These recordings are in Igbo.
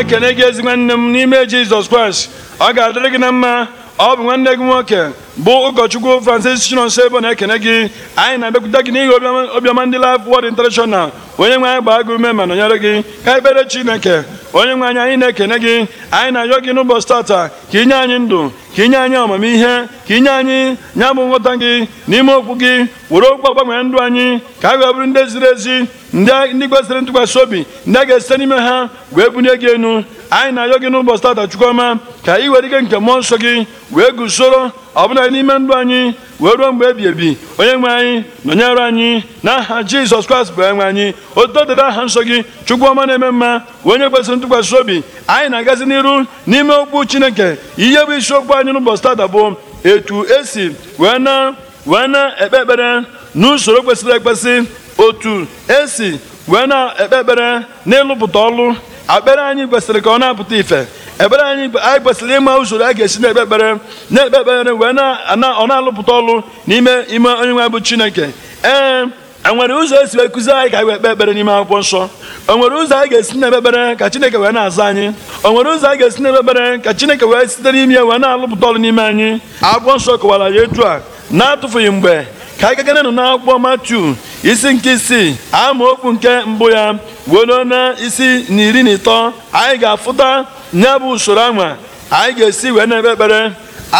ekene gị ezigbo nne m n'ime Jizọs Kraịst ọ ga-adịrị gị na mma ọ bụ nwanne gị nwoke bụ ụkọchukwu Francis Chinonso Ebo na-ekene gị anyị na-abịakwute gị n'ihi obiọma ndị Life Word International onye nwe anyị gbaa gị ume ma nọnyere gị ka ekpere Chineke onye nwe anyị anyị na-ekene gị anyị na-ayọ gị n'ụbọchị tata ka inye anyị ndụ ka inye anyị amamihe ka inye anyị nya bụ nghọta gị n'ime okwu gị were okwu gbanwee ndụ anyị ka anyị bụrụ ndị ziri ezi ndị kwesịrị ntụkwasị obi ndị a ga-esite n'ime ha wee bunye gị enu anyị na-ayọ gị n'ụbọchị tata chukwuma ka anyị were ike nke mmụọ nsọ gị wee gusoro ọbụla n'ime ndụ anyị wee ruo mgbe ebi ebi onye nwe anyị nọnyere anyị na aha jizọs kraịst bụ enwe anyị otu dịrị aha nsọ gị chukwuma na-eme mma onye kwesịrị ntụkwasị obi anyị na-agazi n'iru n'ime okpu chineke ihe bụ isiokwu anyị n'ụbọchị tata bụ etu esi wee na wee na-ekpe ekpere n'usoro kwesịrị ekwesị otu esi wee na-ekpe ekpere n'ịlụpụta ọlụ akpere anyị kwesịrị ka ọ na-apụta ife ebere anyị anyị kwesịrị ịma usoro a ga-esi na-ekpe ekpere na-ekpe ekpere wee ọ na-alụpụta ọlụ n'ime ime onye nwe bụ chineke ee e nwere ụzọ esi wee kụzi anyị ka anyị wee ekpere n'ime akwụkwọ nsọ o e nwere ụzọ anyị ga-esi na-ekpe ekpere ka chineke wee na-aza anyị o e nwere ụzọ anyị ga-esi na-ekpe ekpere ka chineke wee site n'ime ya wee na-alụpụta ọlụ n'ime anyị akwụkwọ nsọ kọwara ya etu a na-atụfughị mgbe ka anyị gaganụ n'akwụkwọ Matiu isi nke isii amaokwu nke mbụ ya were na isi na iri na ịtọ anyị ga-afụta nya bụ usoro anwa anyị ga-esi wee na-ekpe ekpere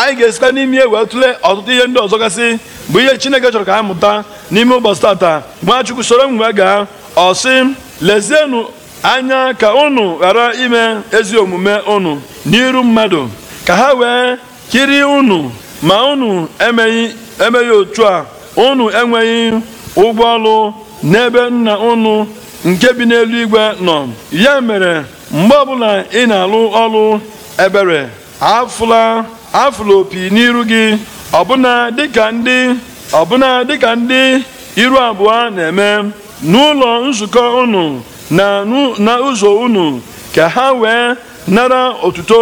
anyị ga-esikwa n'ime wee tụlee ọtụtụ ihe ndị ọzọ gasị bụ ihe Chineke chọrọ ka a mụta n'ime ụbọchị tata Nwachukwu soro m wee gaa ọsị lezienụ anya ka unu ghara ime ezi omume unu n'iru mmadụ ka ha wee kiri unu ma unu emeghị emeghị otu a unu enweghị ụgwọ ọrụ n'ebe nna unu nke bi n'eluigwe nọ ya mere mgbe ọbụla ị na-alụ ọrụ ebere afụla opi n'iru gị ọbụna dịka ndị ndị iru abụọ na-eme n'ụlọ nzukọ unu na n'ụzọ unu ka ha wee nara otuto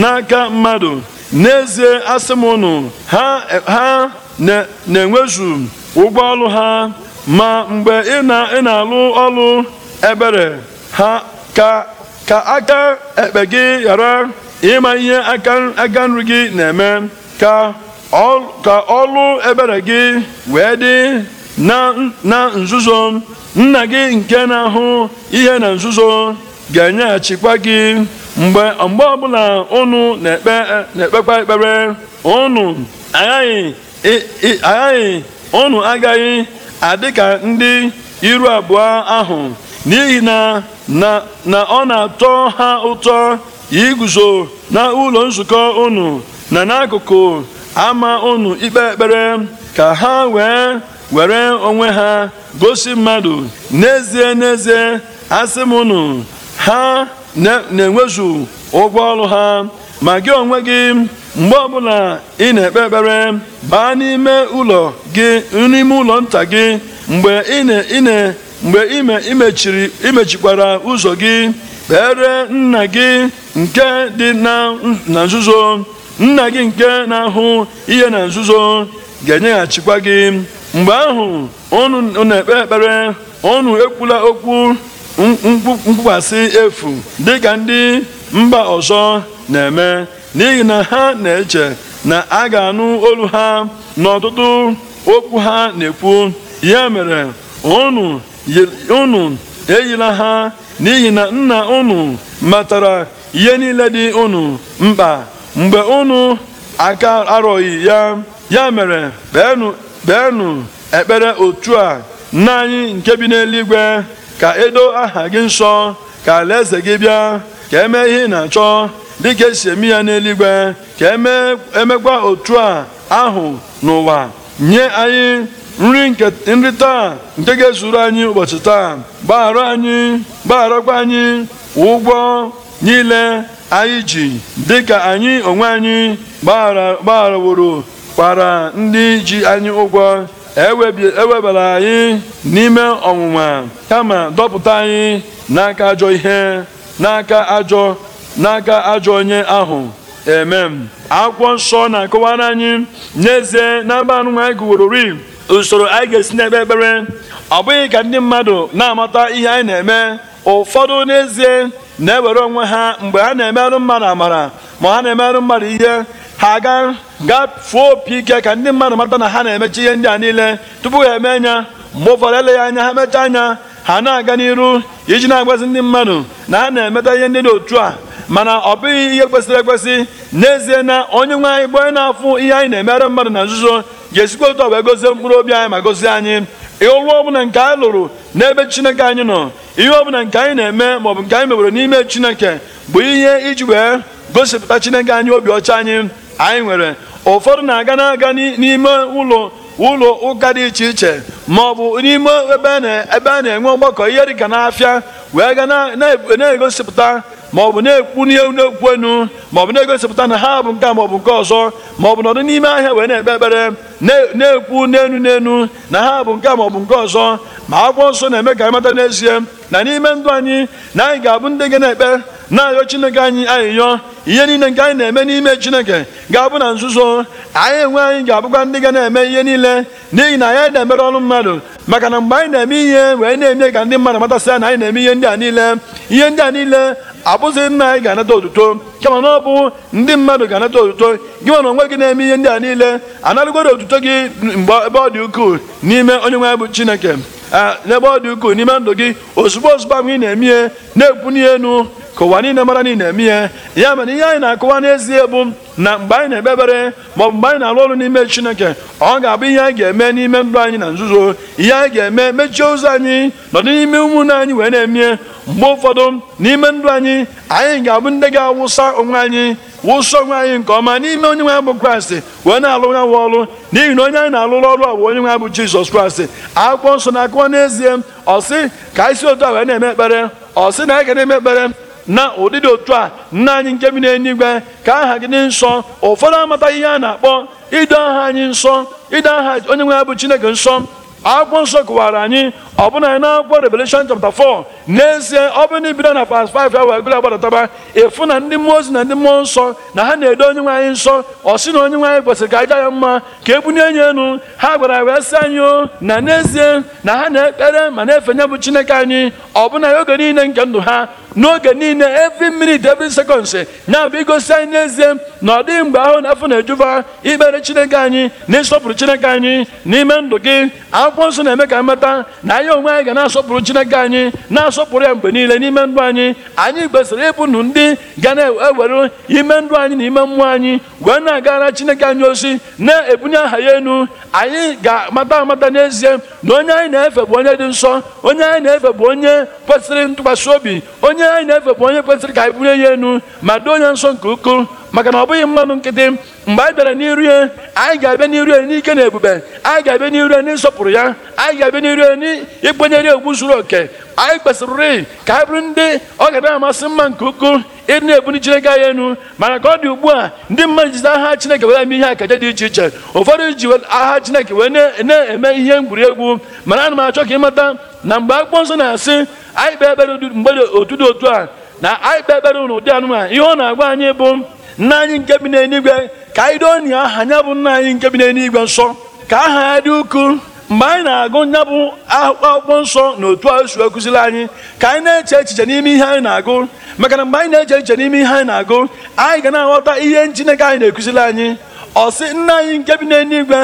n'aka mmadụ n'ezie asị m unu ha na-enwezu ụgwọ ọlụ ha ma mgbe ị na-alụ ọlụ ebere ha ka aka ekpe gị ghara ịma ihe aka nri gị na-eme ka ọlụ ebere gị wee dị na nzuzo nna gị nke na-ahụ ihe na nzuzo ga-enyeghachikwa gị mgbe mgbe ọbụla unu na-ekpekwa ekpere unu aghaghị aghaghị ọnụ agaghị adị ka ndị iru abụọ ahụ n'ihi na ọ na-atọ ha ụtọ iguzo na ụlọ nzukọ unu na n'akụkụ ama unu ikpe ekpere ka ha wee were onwe ha gosi mmadụ n'ezie n'ezie asị m unu ha na-enwezu ụgwọ ọrụ ha ma gị onwe gị mgbe ọbụla ị na-ekpe ekpere baa n'ime ụlọ gị n'ime ụlọ nta gị mgbe ime imechikwara ụzọ gị kpere nna gị nke dị na nzuzo nna gị nke na-ahụ ihe na nzuzo ga-enyeghachikwa gị mgbe ahụ unu na-ekpe ekpere ọnụ ekwula okwu mkpụkwasị efu dịka ndị mba ọzọ na-eme n'ihi na ha na-eche na a ga-anụ olu ha n'ọtụtụ okwu ha na-ekwu ya mere unu unu eyila ha n'ihi na nna ụnụ matara ihe niile dị unu mkpa mgbe unu aka arọghị ya ya mere beenu ekpere otu a nna anyị nke bi n'eluigwe ka edo aha gị nsọ ka alaeze gị bịa ka emee ihe ị na-achọ dịka esi eme ya n'eluigwe ka emekwa e otu a ahụ n'ụwa nye anyị nri taa nke ga-ezuru anyị ụbọchị taa gbaghara anyị gbagharakwa anyị ụgwọ niile anyị ji dịka anyị onwe anyị gbagharaworo kwara ndị ji anyị ụgwọ ewebara e anyị n'ime ọnwụnwa kama dọpụta anyị n'aka ajọ ihe n'aka ajọ n'aka ajọ onye ahụ eme akwụkwọ nsọ na-akọwara anyị n'ezie n'ebe anụ anyị gụworori usoro anyị ga-esi n'ebe ekpere ọ bụghị ka ndị mmadụ na-amata ihe anyị na-eme ụfọdụ n'ezie na-ewere onwe ha mgbe ha na-emerụ mmadụ amara ma ha na-emerụ mmadụ ihe ha ga gafuo opi ike ka ndị mmadụ mata na ha na-emecha ihe ndị a niile tupu ha eme anya mgbe ụfọdụ eleghị anya ha mechaa anya ha na-aga n'iru iji na-agbazi ndị mmadụ na ha na-emeta ihe ndị dị otu a mana ọ bụghị ihe kwesịrị ekwesị n'ezie na onye nwe anyị bụ na-afụ ihe anyị na-emere mmadụ na nzuzo ga-esikwa otu ọ wee gozie mkpụrụ obi anyị ma gozie anyị ọ ọbụla nke anyị lụrụ n'ebe chineke anyị nọ ihe ọbụla nke anyị na-eme maọbụ nke anyị mewere n'ime chineke bụ ihe iji wee gosipụta chineke anyị obi ọcha anyị anyị nwere ụfọdụ na-aga na-aga n'ime ụlọ ụlọ ụka dị iche iche ma ọ bụ n'ime ebe a na-enwe ọgbakọ ihe dịka n'afịa wee ga na-egosipụta ma ọ bụ na-ekwu n'ihe na-ekwu enu ma ọ bụ na-egosipụta na ha bụ nke ma ọ bụ nke ọzọ ma ọ bụ nọdụ n'ime ahịa wee na-ekpe ekpere na-ekwu n'enu n'enu na ha bụ nke ma ọ bụ nke ọzọ ma akwụkwọ nsọ na-eme ka anyị mata n'ezie na n'ime ndụ anyị na anyị ga-abụ ndị ga na-ekpe na-ayọ chineke anyị ayịyọ ihe niile nke anyị na-eme n'ime chineke ga-abụ na nzuzo anyị enwe anyị ga-abụkwa ndị ga na-eme ihe niile n'ihi na anyị na-emere ọrụ mmadụ maka na mgbe anyị na-eme ihe wee na-eme ka ndị mmadụ matasịa na anyị na-eme ihe ndị a niile ihe ndị a niile abụzị nna anyị ga-anata otuto kama na ọ bụ ndị mmadụ ga-anata otuto gị na onwe gị na-eme ihe ndị a niile anarụgoro otuto gị mgbe ebe ọ dị ukwuu n'ime onye nwe bụ chineke n'ebe ọ dị ukwuu n'ime ndụ gị ozugbo ozugbo ahụ ị na-eme ihe na-ekwunye enu ka ụwa niile mara na na-eme ihe ya mere ihe anyị na-akọwa n'ezie bụ na mgbe anyị na-ekpe ekpere ma ọ bụ mgbe anyị na-alụ ọrụ n'ime chineke ọ ga-abụ ihe anyị ga-eme n'ime ndụ anyị na nzuzo ihe anyị ga-eme mechie ụzọ anyị nọdụ n'ime ụmụnne anyị wee na-emie mgbe ụfọdụ n'ime ndụ anyị anyị ga-abụ ndị ga-awụsa onwe anyị wụsọ onwe anyị nke ọma n'ime onye nwe bụ kraịst wee na-alụ ya ọrụ n'ihi na onye anyị na alụ ọrụ a bụ onye nwe bụ jizọs kraịst akwụkwọ nsọ na-akụwa n'ezie ọ sị ka isi otu a wee na-eme ekpere ọ sị na anyị ga na-eme ekpere na ụdịdị otu a nna anyị nke bi n'eluigwe ka aha gị dị nsọ ụfọdụ amata ihe a na-akpọ ịdị aha anyị nsọ ịdị aha onye nwe ya bụ chineke nsọ akwụkwọ nsọ kụwara anyị na anyị n'akwụkwọ Revelation chapter 4 n'ezie ọ bụrụ na ibido na pas 5 ya wee gụrụ agbadataba ịfụ na ndị mmụọ ozi na ndị mmụọ nsọ na ha na-edo onye nwe anyị nsọ ọ sị na onye nwe anyị kwesịrị ka aja ya mma ka e bunye enyi enu ha gwara wee sị anyị na n'ezie na ha na-ekpere ma na-efenye bụ Chineke anyị ọbụna ya oge niile nke ndụ ha n'oge niile every minute every seconds ya abụ igosi anyị n'ezie na ọ dịghị mgbe ahụ na afọ na-ejuba ikpere chineke anyị na ịsọpụrụ chineke anyị n'ime ndụ gị akwụkwọ nsọ na-eme ka mmata na anyị onwe anyị ga na-asọpụrụ chineke anyị na-asọpụrụ ya mgbe niile n'ime ndụ anyị anyị kwesịrị ịbụ ndụ ndị ga na-ewere ime ndụ anyị na ime mmụọ anyị wee na-agara chineke anyị ozi na-ebunye aha ya enu anyị ga-amata amata n'ezie na onye anyị na-efe bụ onye dị nsọ onye anyị na-efe bụ onye kwesịrị ntụkwasị obi onye onye anyị na-efe bụ onye kwesịrị ka anyị buru ya enu ma doo onye nsọ nke ukwuu maka na ọ bụghị mmanụ nkịtị mgbe anyị bịara n'iru ya anyị ga-abịa n'iru ya n'ike na ebube anyị ga-abịa n'iru ya n'ịsọpụrụ ya anyị ga-abịa n'iru ya n'ịkwenyere egwu zuru oke anyị kwesịrị ka anyị bụrụ ndị ọ ga na-amasị mma nke ukwuu ịdị na-ebuli Chineke anyị enu mana ka ọ dị ugbu a ndị mmadụ jizi aha Chineke wee eme ihe akaja dị iche iche ụfọdụ ji aha Chineke wee na-eme ihe egwu mana ana m achọ ka ịmata na mgbe akpụkpọ nsọ na-asị anyị kpee ekpere mgbede otudo otu a na anyị kpee ekpere ụdị anụmanụ ihe ọ na-agwa anyị bụ nna anyị nke bi n'eluigwe ka anyị doo nye aha nya bụ nna anyị nke bi n'eluigwe nsọ ka aha ya dị ukwuu mgbe anyị na-agụ nya bụ akwụkwọ nsọ na otu a si anyị ka anyị na-eche echiche n'ime ihe anyị na-agụ maka na mgbe anyị na-eche echiche n'ime ihe anyị na-agụ anyị ga na-aghọta ihe Chineke anyị na-ekụziri anyị ọ sị nna anyị nke bi n'eluigwe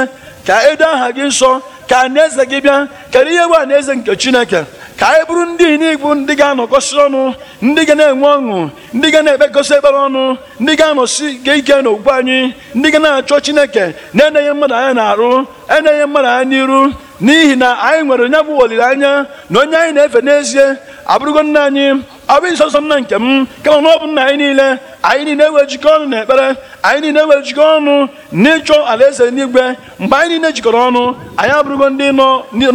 ka edo aha gị nsọ ka na eze gị bịa kedu ihe bụ na eze nke Chineke ka anyị e bụrụ ndị inigbu ndị ga-anọkọsi ọnụ ndị ga na-enwe ọṅụ ndị ga na-ekpekọsị ekpere ọnụ ndị ga-anọsi ga ike n'okwu anyị ndị ga na-achọ chineke na-enyeghị mmadụ anya na-arụ enyeghị mmadụ anya n'iru n'ihi na anyị nwere onye bụ olileanya na onye anyị na-efe n'ezie abụrụgo nna anyị abụ nsọnsọ m na nke m kama na ọ bụ nna anyị niile anyị niile wee jikọọ ọnụ ekpere, anyị niile wee jikọọ ọnụ n'ịchọ alaeze n'igwe mgbe anyị niile jikọrọ ọnụ anyị abụrụgo ndị nọ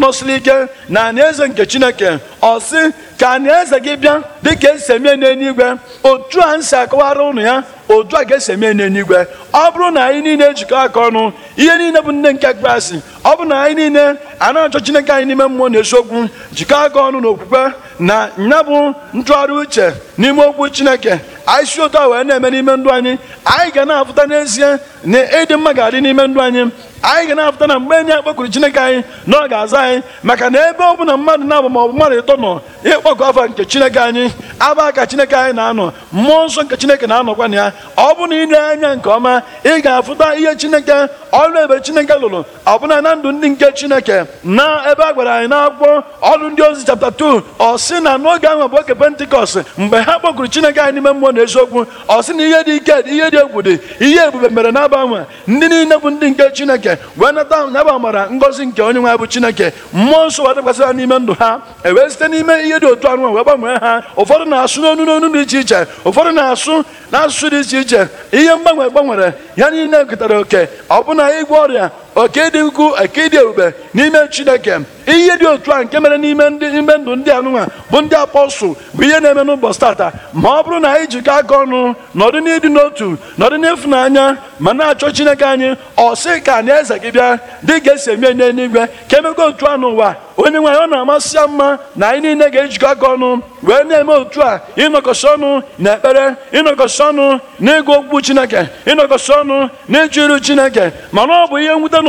nọsiri ike na n'aeze nke chineke ọ sị ka alaeze gị bịa dịka esi emie n'eluigwe otu a m si akọwara ụnụ ya otu a ga-esi eme n'eluigwe ọ bụrụ na anyị niile ejikọ aka ọnụ ihe niile bụ nne nke Kraịst ọ bụrụ na anyị niile a na-achọ Chineke anyị n'ime mmụọ na eziokwu jikọ aka ọnụ na okwukwe na nya bụ ntụgharị uche n'ime okwu Chineke anyị si otu a wee na-eme n'ime ndụ anyị anyị ga na-afụta n'ezie na ịdị mma ga-adị n'ime ndụ anyị anyị ga na-apụta na mgbe enyi akpọkuru chineke anyị na ọ ga-aza anyị maka na ebe ọ bụla mmadụ na-abụ maọbụ mmadụ ịtọ nọ ịkpọkọ afa nke chineke anyị aba ka chineke anyị na-anọ mmụọ nsọ nke chineke na-anọkwa na ya ọ bụ na ile anya nke ọma ị ga-afụta ihe chineke ọrụ ebe chineke lụrụ ọbụna na ndụ ndị nke chineke na ebe a gwara anyị n'akwụkwọ ọrụ ndị ozi chapta 2 ọ sị na n'oge ahụ bụ oge pentikọst mgbe ha kpọkuru chineke anyị n'ime mmụọ na eziokwu ọ sị na ihe dị ike ihe dị egwu dị ihe ebube mere nabụ ndị niile bụ ndị nke chineke chineke wee nata n'ebe ngọzi nke onye nwe bụ chineke mmụọ nsọ wee dakwasị ha n'ime ndụ ha ewee site n'ime ihe dị otu anụ wee gbanwee ha ụfọdụ na-asụ n'onu n'onu dị iche iche ụfọdụ na-asụ n'asụsụ dị iche iche ihe mgbanwe gbanwere ya niile ketara oke ọbụna ịgwọ ọrịa oke dị ukwu oke dị ebube n'ime chineke ihe dị otu a nke mere n'ime ime ndụ ndị anụnwa bụ ndị apọstụl bụ ihe na-eme n'ụbọchị tata ma ọ bụrụ na anyị jikọ aka ọnụ nọdụ n'ịdị n'otu nọdụ n'ịfụnanya ma na-achọ chineke anyị ọsị ka na eze gị bịa dị ga esi eme n'eluigwe ka emekwa otu a n'ụwa onye nwaanyị ọ na-amasị ya mma na anyị niile ga-ejikọ aka ọnụ wee na-eme otu a ịnọkọsị ọnụ na ekpere ịnọkọsị ọnụ na ịgụ okwu chineke ịnọkọsị ọnụ na ịchụ iru chineke mana ọ bụ ihe mwute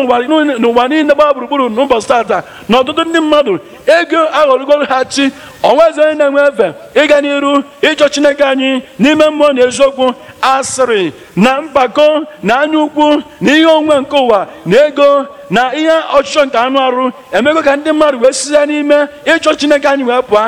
n'ụwa niile gbaa gburugburu n'ụbọchị tata na ọtụtụ ndị mmadụ ego aghọrọgoro ha chi onwezi onye na-enwe efe ịga n'iru ịchọ chineke anyị n'ime mmụọ na eziokwu asịrị na mpako na anya ukwu na ihe onwe nke ụwa na ego na ihe ọchịchọ nke anụ arụ emego ka ndị mmadụ wee sizie n'ime ịchọ chineke anyị wee pụa.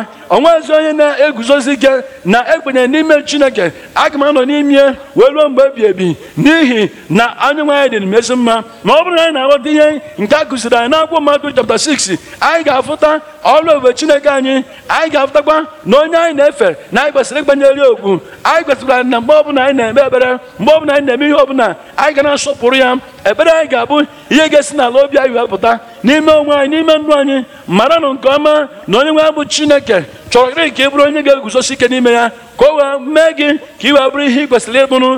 ezi onye na-eguzozi gị na ekwenye n'ime chineke aga m anọ n'ime wee ruo mgbe ebi ebi n'ihi na anyị dị dịrị m ezi mma ma ọ bụrụ na anyị na-aghọta ihe nke a kụziri anyị n'akwụkwọ mmadụ chapta 6 anyị ga-afụta ọrụ ebube chineke anyị anyị ga-afụtakwa na onye anyị na-efe na anyị kwesịrị ịgbanyere okwu anyị kwesịrị na mgbe ọbụla anyị na-eme ebere mgbe ọbụla anyị na-eme ihe ọbụla anyị ga na-asọpụrụ ya ebere anyị ga-abụ ihe ga-esi n'ala obi anyị wepụta n'ime onwe anyị n'ime ndụ anyị nụ nke ọma na onye nwe abụ chineke chọrọrị ka ị bụrụ onye ga-eguzosi ike n'ime ya ka o wee mee gị ka ị wee bụrụ ihe ị kwesịrị ịbụrụ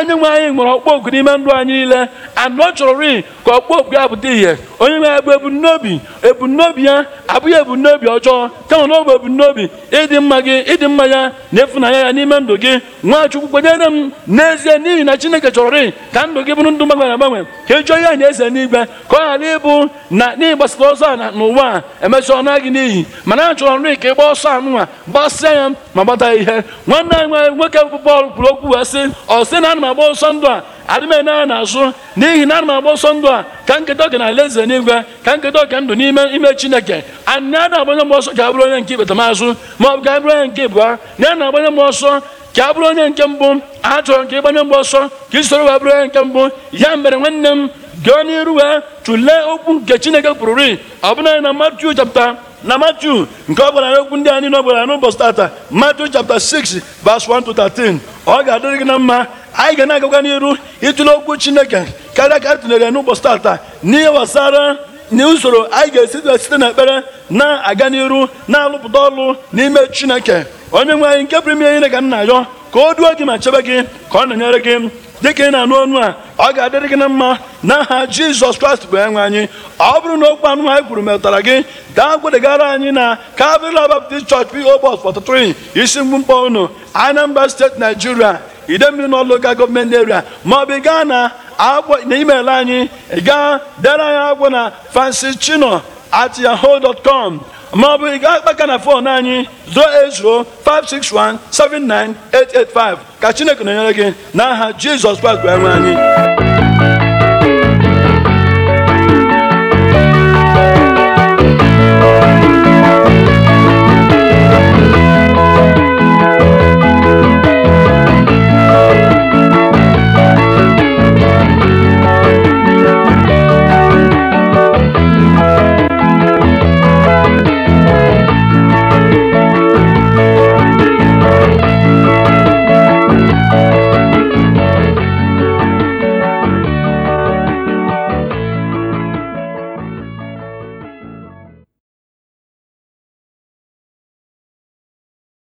enye nwe anyị nwere ọkpọ ogu n'ime ndụ anyị niile chọrọ chọrọrị ka okpu ya pụta ihe onye nwere bụ ebumnobi ebumnobi ya abụghị ebumnobi ọjọọ kama na ọ bụ ebumnobi ịdị mma gị ịdị mma ya na ịfụnanya ya n'ime ndụ gị nwachukwu kwenyere m n'ezie n'ihi na chineke chọrọ chọrọrị ka ndụ gị bụrụ ndụ gbanwere agbanwe ka ị jụọ ya na eze n'igwe ka ọ ghara ịbụ na n'ịgbasara ọsọ a n'ụwa a emesịa ọnụ agị n'iyi mana a chọrọ nri ka ị ọsọ ọsọ anụnwa gbasịa ya ma gbata ihe nwanne anyị nwoke bụ Pọl kwuru okwu wee sị ọ sị na ana m agba ọsọ ndụ a na azụ n'ihi na ana m agba ọsọ ndụ a ka nketa oke na ala eze n'igwe ka nketa ọka ndụ n'ime ime chineke anị a na-agbanye m ọsọ ka abụrụ onye nke ikpetamazụ m azụ bụ ka abụrụ onye nke ịbụa na ya na-agbanye m ọsọ ka abụrụ onye nke mbụ a chọrọ nke ịgbanye mgbe ọsọ ka isoro wee bụrụ onye nke mbụ ya mere nwanne m gaa n'iru wee tụlee okwu nke chineke kwururi ọbụna na Matiu chapta na Matiu nke ọ gwara okwu ndị anyị na ọ gwara n'ụbọchị tata Matiu chapta 6 verse 1 to 13 ọ ga-adịrị gị na mma anyị ga na-agakwa n'iru ịtụle okwu chineke karịa ka a tụnyere ya n'ụbọchị n'ihe gbasara n'usoro anyị ga-esi site na ekpere na-aga n'iru na-alụpụta ọrụ n'ime chineke onye nwe anyị nke pụrụ ime ihe ka m na-ayọ ka o duo gị ma chebe gị ka ọ na-enyere gị dịka ị na-anụ ọnụ a ọ ga-adịrị gị na mma n'aha jizọs kraịst bụ enwe anyị ọ bụrụ na okwu anụ anyị kwuru metụtara gị gaa gwedegara anyị na Calvary Baptist Church P.O. Box 43 isi mgbumkpọ unu Anambra steeti naijiria mmiri nọ lokal gọọmenti eria ma ọ bụ ị gaa na email anyị gaa dere anyị agwọ na chino at yahoo dot com ma ọ bụ ị gaa kpaka na fon anyị 561 08-561-79885 ka chineke na-enyere gị n'aha jizọs kraịst bụ enwe anyị